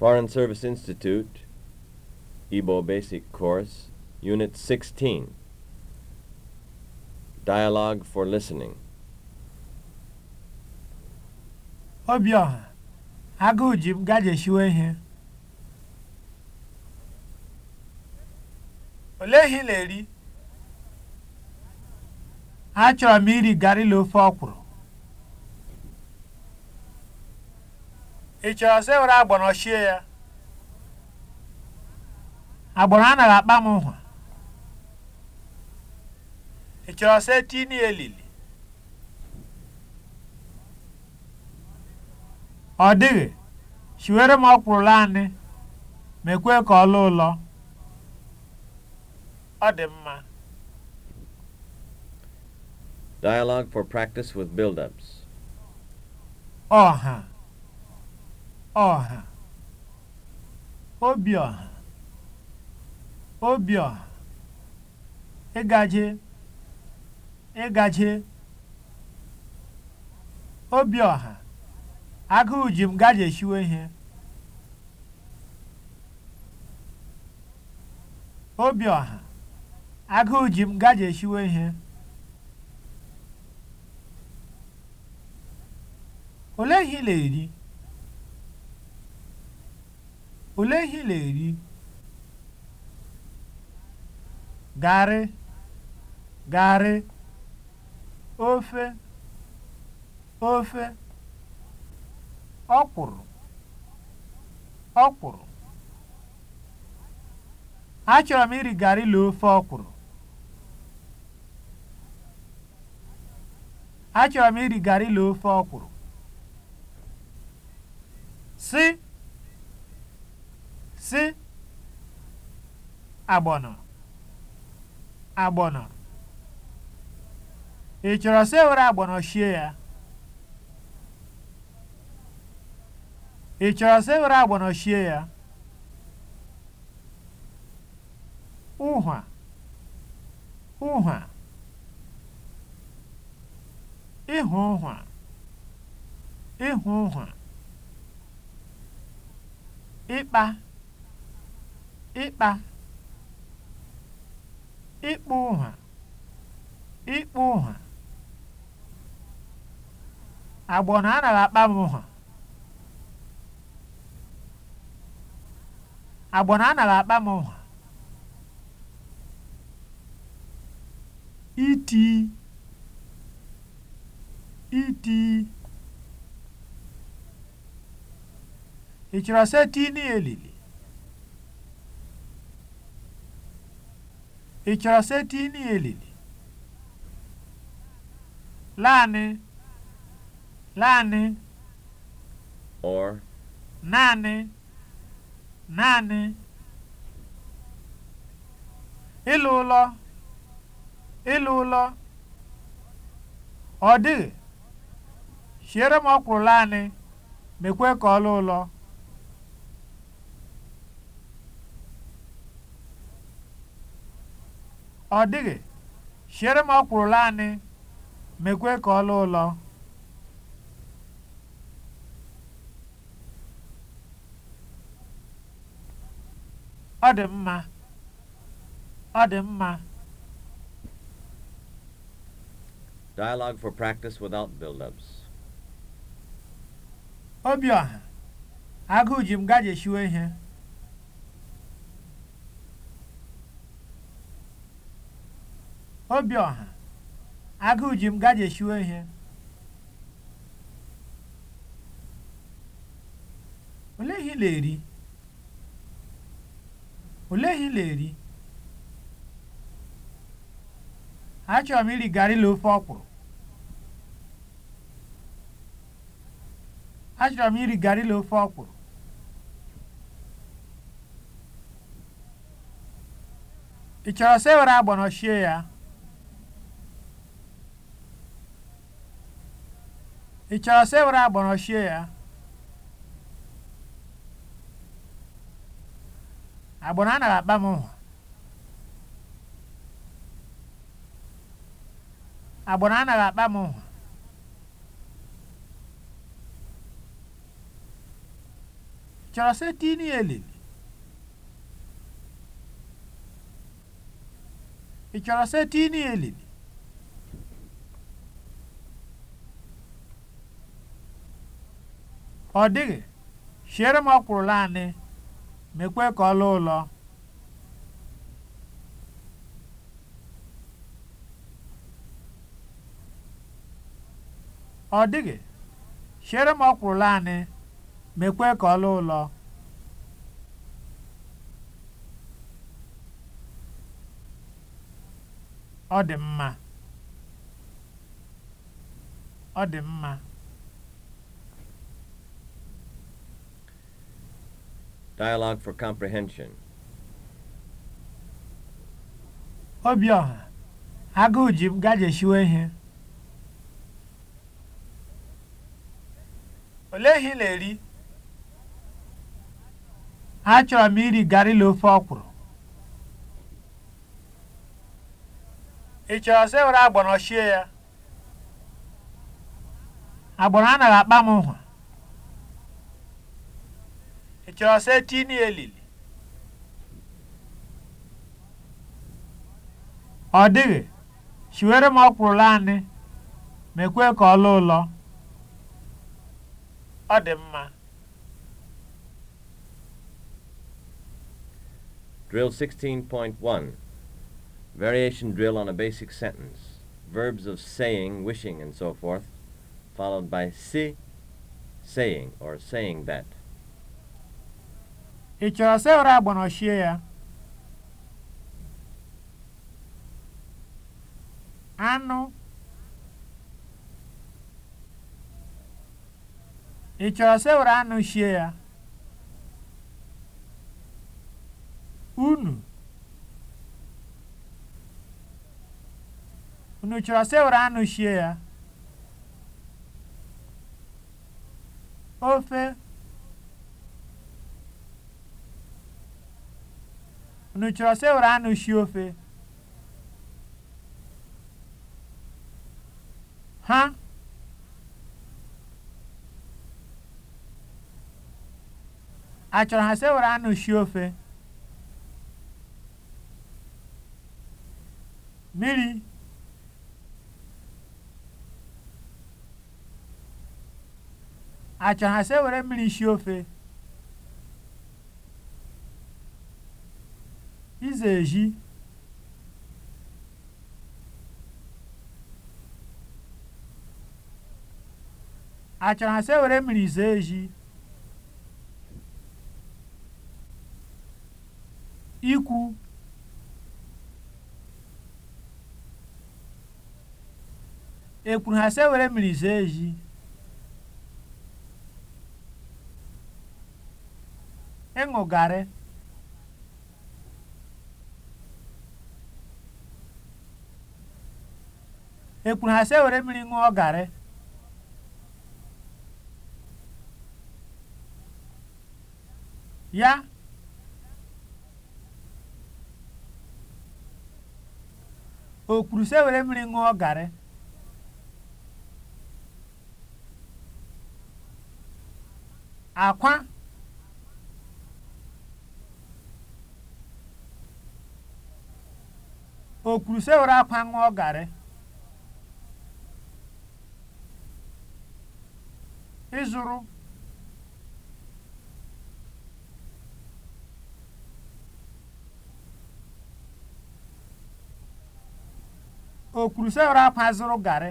Foreign Service Institute, Igbo Basic Course, Unit 16. Dialogue for Listening. obioha agụụ ji m gajeshiwe ihe. Olee ihe ị na-eri? Achọrọ m iri garri na ofe ọkwụrụ. ị chọrọ sọ were agbọrọ ọchie ya agbọrọ anaghị akpa m nhwa ị chọrọ sọ etini elili ọ dịghị shiwere m ọkwụrụ anị mekwe ka ọ lụọ ụlọ ọ dị mma Dialogue for practice with build-ups. -huh. Ọha, Obiọha, ọha ịgaje, ịgaje, ọha agụụ ji m gaje shiwe ihe. ọha agụụ ji m shiwe ihe. Olee ihe ị na-eri? Olee ihe na-eri? Garị, garị. Ofe, ofe. Ọkwụrụ, ọkwụrụ. Achọrọ m iri garị la ofe ọkwụrụ. Achọrọ sị agbọnọ agbọnọ ị chọrọ sị ewere agbọnọ shie ya ị chọrọ sị ewere agbọnọ shie ya ụhwa ụhwa ịhụ ụhwa ịhụ ụhwa ịkpa ịkpa ịkpụ ụ̀hà ịkpụ ụ̀hà agbọna anaghị akpa m ụ̀hà agbọna anaghị akpa m ụ̀hà iti iti ị chọrọ seti n'elili Ị chọrọ setịịnụ elele? Naanị, naanị. Or. Naanị, naanị. Ịlụ ụlọ, ịlụ ụlọ. Ọ dịghị, siere m ọkwụrụ naanị, mekwe ka ọ lụọ ụlọ. ọ dịghị siere m ọkwụrụla anyị mekwe ka ọ lụ ụlọ ọ dị mma ọ dị mma Dialogue for practice without build-ups. Obiọha, agụụ ji m gajeshiwe ihe ọha, agụụ ji m gajeshuo ihe. Olee ihe ị na-eri? Olee ihe na-eri? Achọrọ m iri garri la ofe ọkwụrụ. Achọrọ m iri garri la ofe ọkwụrụ. Ị chọrọ sị were agbọnọ ya? Ị chọrọ sị ya? Agbọrọ anaghị akpa m mụ. Agbọrọ anaghị akpa m Ị chọrọ sị ọ dịghị siere m ọkwụrụ anị mekwe ka ọ anị mekwe ka ọ lụọ ụlọ ọ dị mma ọ dị mma Dialogue for Comprehension. Obiọha, agụụ ji m gajeshiwe ihe. Olee ihe ị na-eri? Achọrọ m iri garị na ofe ọkwụrụ. Ị chọrọ sị were agbọnọ shie ya? Agbọnọ anaghị akpa m nhwa. Josetini elili. Ọ dịghị, siwere m ọkwụrụ anyị mekwe ka ọ lụọ ụlọ. Ọ dị mma. Drill 16.1 Variation drill on a basic sentence. Verbs of saying, wishing, and so forth, followed by si, saying, or saying that. Ị chọrọ sewere agbanorchie ya? Anụ. Ị chọrọ sewere anụ shie ya? Unu. Unu chọrọ sewere anụ shie ya? Ofe. Unu chọrọ sewere anụ sie ofe? Ha achọrọ ha sewere anụ sie ofe? Mmiri achọrọ ha sewere mmiri sie ofe? Nzeji achọrọ asị were mmiri zee eji ikwu ekwuru ha asewere were mmiri zee eji ịṅụ garị ekwuru ha sị ewere mmiri ṅụọ garị ya o kwuru sị ewere mmiri ṅụọ garị akwa o kwuru sị ewere akwa ṅụọ garị ịzụrụ o kwuru sị akwa zụrụ garị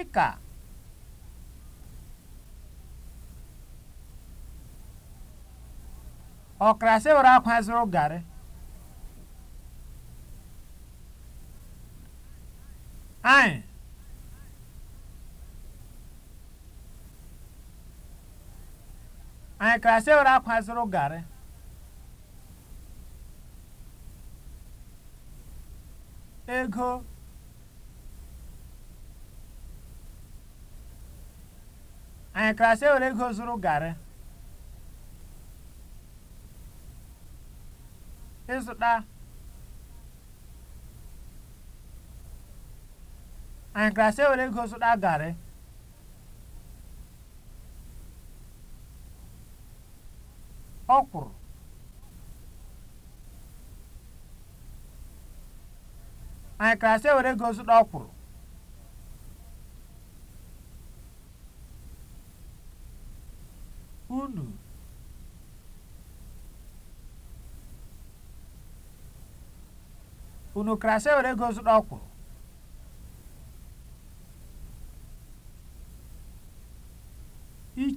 ịka ọkara sị were akwa zụrụ garị Hi. Anyị klasị ụra akwa zụrụ garị. Ego. Anyị klasị ụra ego zụrụ garị. Ịzụta. anyị gasị ewere ego zụta garị ọkwụrụ anyị gasị ewere ego zụta ọkwụrụ unu unu gasị ewere ego zụta ọkwụrụ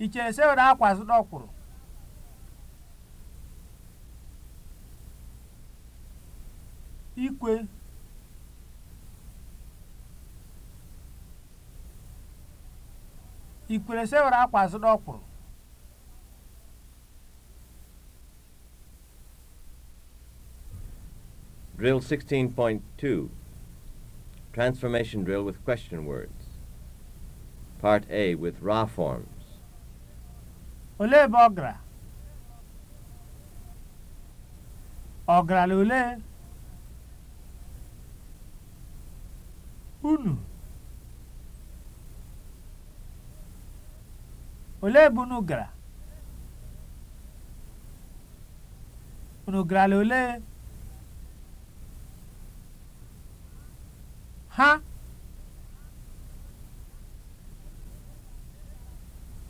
Iche Seun akwa zụta ọkwụrụ. Ikwe. Ikwere Seun akwa zụta ọkwụrụ. Drill 16.2 Transformation drill with question words. Part A with raw form. Olee ebe ọ gara? Ọ olee? Unu? Olee ebe unu gara? Unu garala olee? Ha?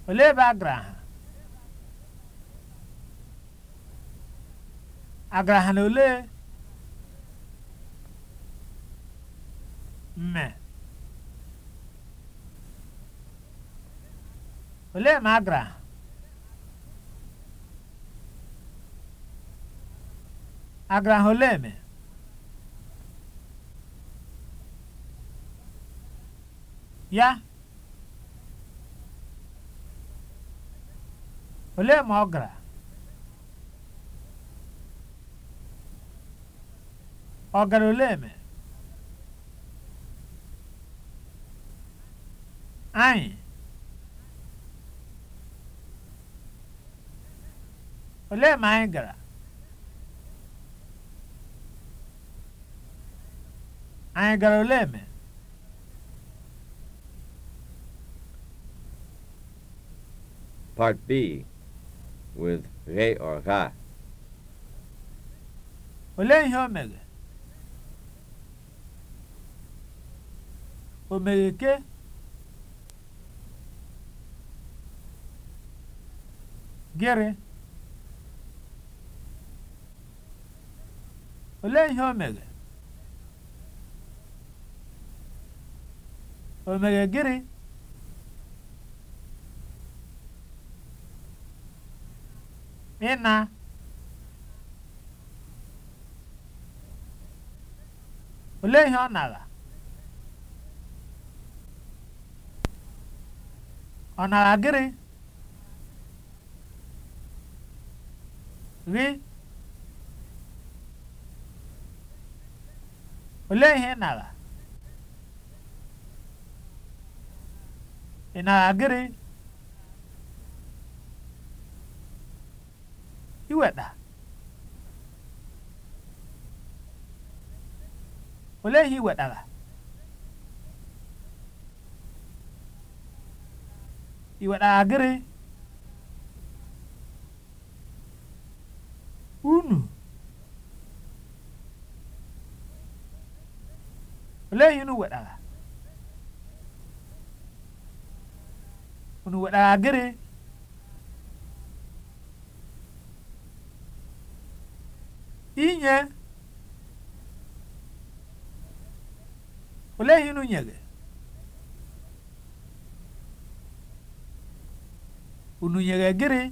Olee ebe a gara ha? agaragha na ole mme Ole ma agara agara ha olee eme ya Ole ma ọ gara Ogara ole eme anyị ole eme anyị gara anyị gara ole eme Part B with re or ha. Olee ihe o mere? ke gịrị olee ihe o mere o mere gịnị ịna olee ihe ọ nara ọ nara gịnị gị olee ihe ị nara ị nara gịnị iweta olee ihe ị wetara i waɗa agré unu olay unu waɗaga unu waɗaga agré inye olay unu ñege unu nyere gịnị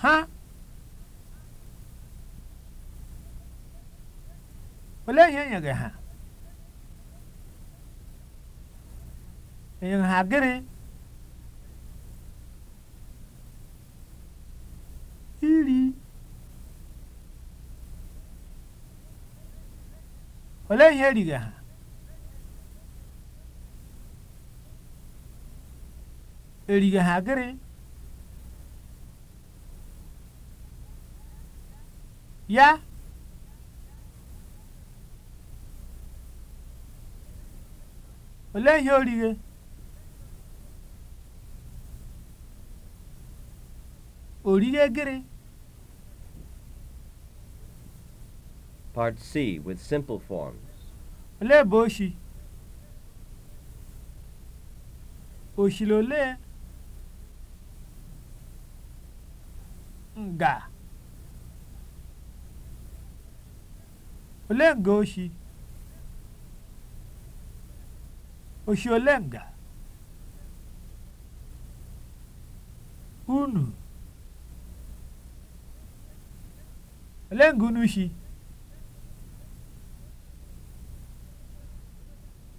ha olee ihe e nyere ha enyere ha gịnị iri olee ihe eriri ha Eriga ha gịrị? Ya? Olee ihe orighe? Orighe gịrị? Part C with simple forms. Olee boshi? oshi? Oshilole? nga ole nga oshi oshi ole nga unu ole nga unu shi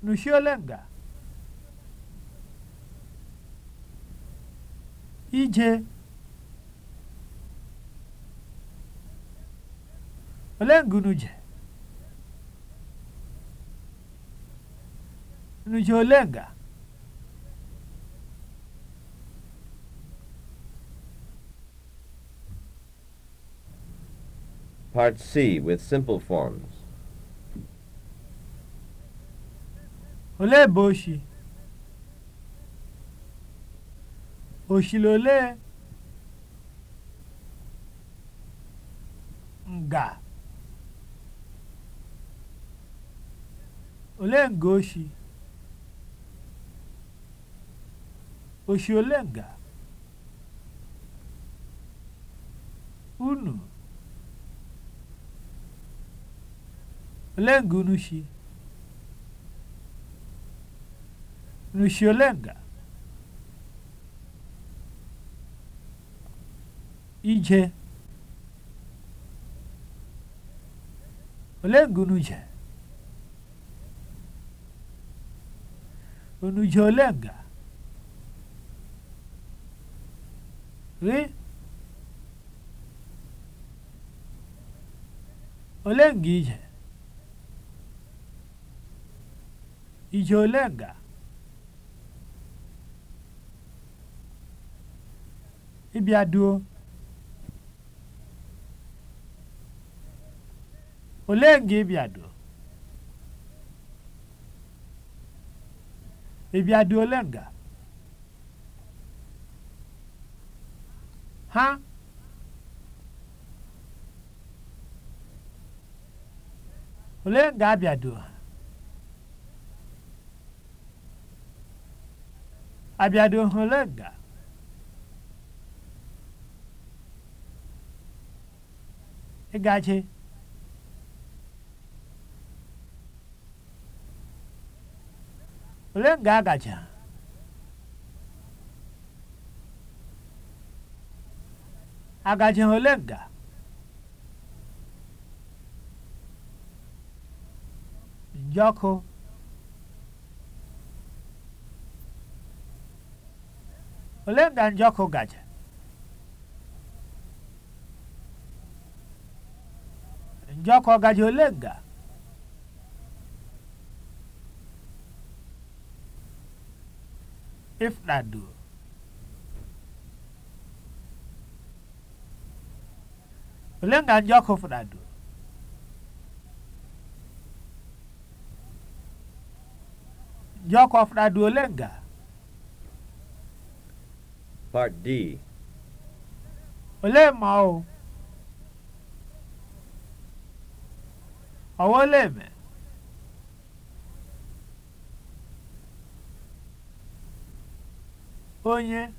nushi ole nga ije Olee nke unu je? ole nga? Part C with simple forms. Olee boshi, boshi Oshile olee? Nga. Olenga oshi. nga? Unu. Olenga unu shi. nga? Ije. Olenga unu je. Unu ji ole nga? Ị? Ole nga ije? Ije ole nga? Ịbịa duo? Ole nga ịbịa duo? ị bịa nga ha ole nga abịado ha abịado ha ole nga ịgachi ole nga a gachara agaji ha ole nga njọkụ ole nga njọkụ gacha njọkụ ọgaji ole nga if that do. Pelenggan Joko Fernando. Joko Fernando Lenga. Part D. Ole mau. Awoleme. onye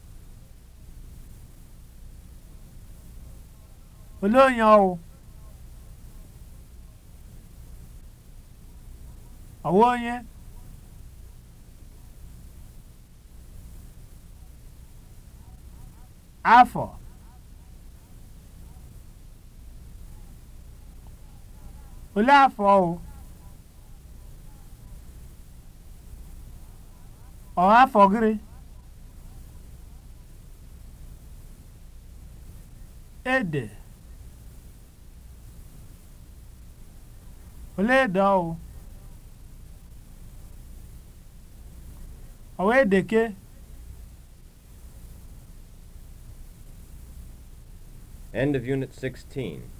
olee onye ọwụ ọwụ onye afọ olee afọ ọwụ afọ gịrị ede olee ede ọwụ ọwa End of Unit 16.